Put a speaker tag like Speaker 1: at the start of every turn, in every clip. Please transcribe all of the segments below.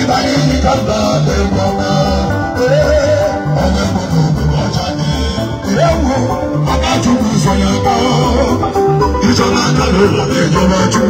Speaker 1: Ibadan ni kaba lè wọ́n náà. ewu ọba tún kù sọyà bọ ìjọba kàlẹ́ wà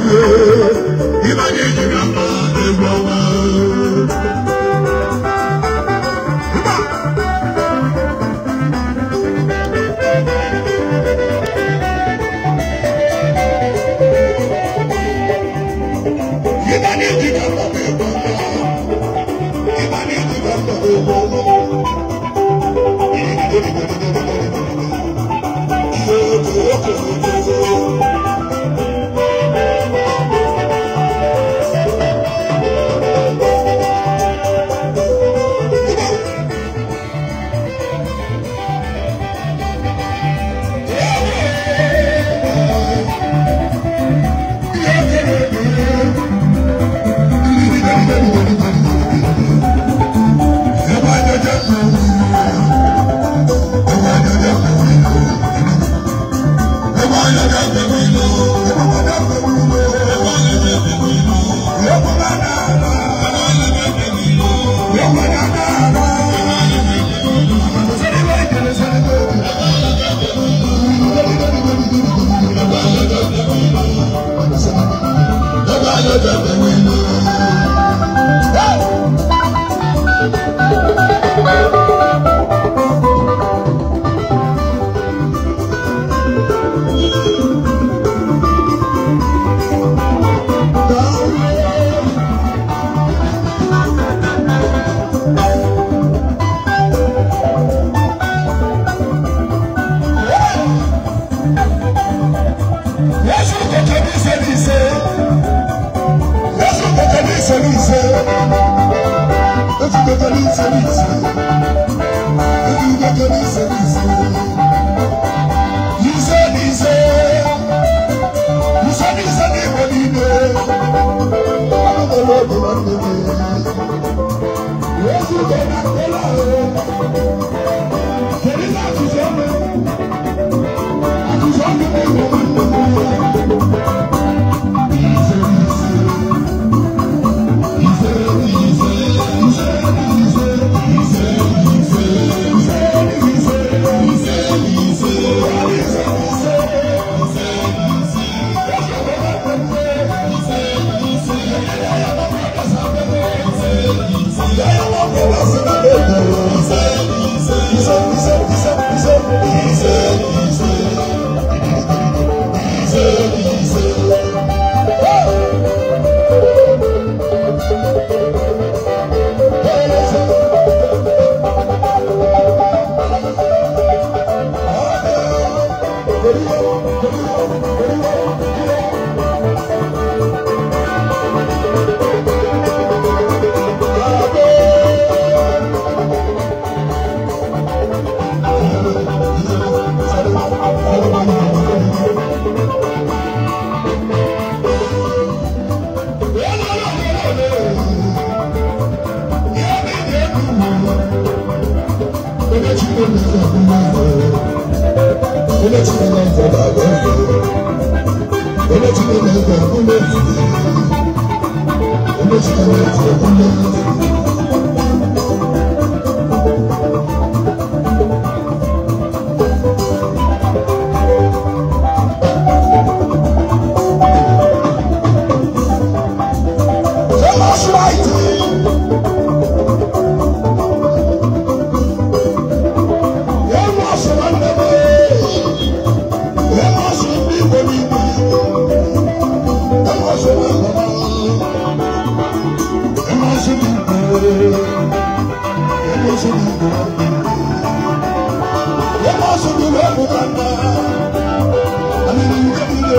Speaker 1: Thank you. onye Chineke nke bụ agwa na nke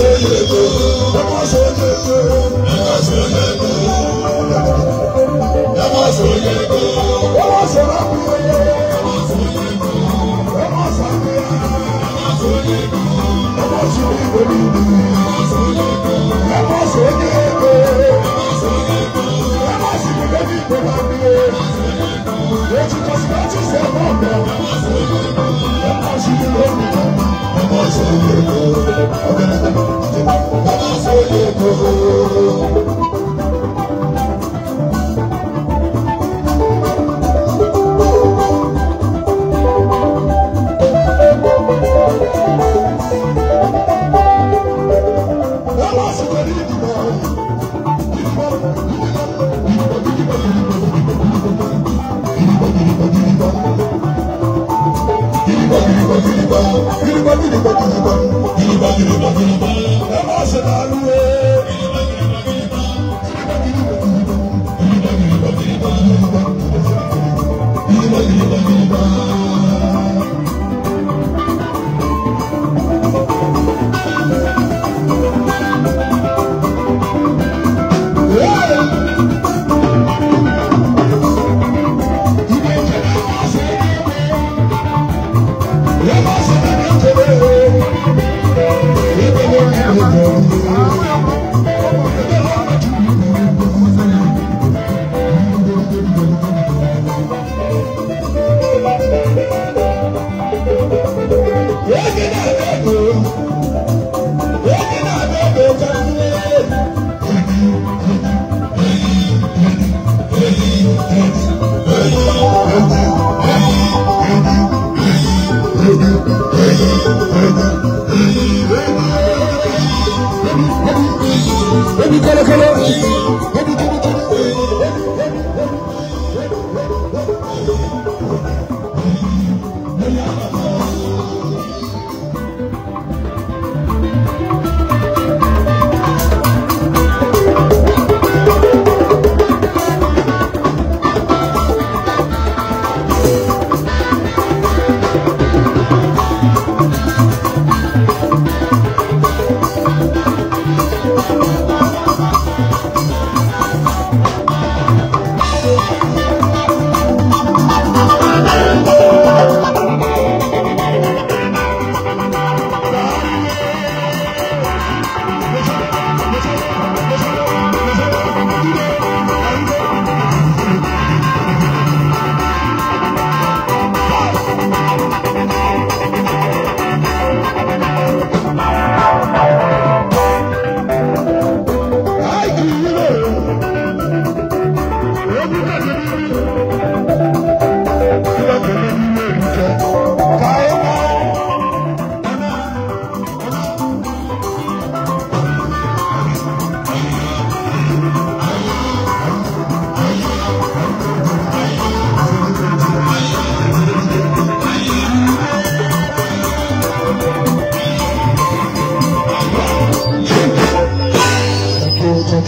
Speaker 1: ṣojúgo ẹ má ṣojúgo ẹ má ṣojúgo ẹ má ṣojúgo ẹ má ṣojúgo ẹ má ṣojúgo ẹ má ṣojúgo ẹ má ṣojúgo ẹ má ṣojúgo ẹ má ṣojúgo ẹ má ṣojúgo. gịnịgba gịnịgba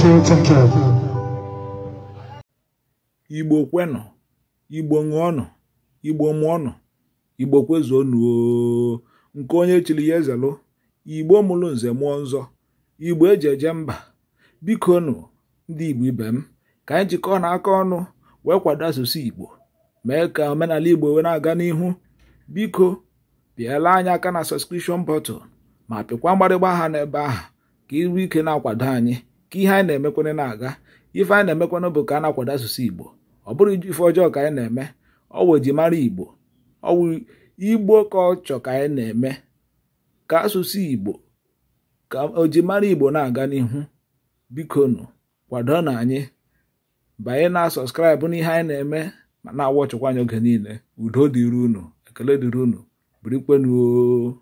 Speaker 1: Igbo
Speaker 2: Igbo kwenụ Igbo ṅụọnụ Igbo mụọnụ Igbo kwezuonụ nke onye chiri ya ezelụ Igbo mụrụ nze mụọ nzọ Igbo eji eje mba biko nụ ndị Igbo ibe m ka anyị jikọọ na aka ọnụ wee kwado asụsụ Igbo mee ka omenala Igbo wee na-aga n'ihu biko pịala anyị aka na sọskrishọn bọtụl ma pịkwa mgbarịgba aha n'ebe ahụ ka ịrụ ike na-akwado anyị ka ihe anyị na-emekwene na-aga ife anyị na-emekwana bụ ka a na-akwado asụsụ igbo ọ bụrụ ife ọjọọ ka anyị na-eme ọ wụ ejimara igbo ọ igbo ka ọ chọ ka anyị na-eme ka asụsụ igbo ka mara igbo na-aga n'ihu bikonu kwado na anyị banye na sọskraịbụ n'ihe anyị na-eme ma na-awọ anyị oge niile udo dịrị unu ekele dịrị unu birikwenuo